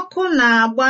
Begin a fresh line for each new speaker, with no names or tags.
Ọkụ na-agba.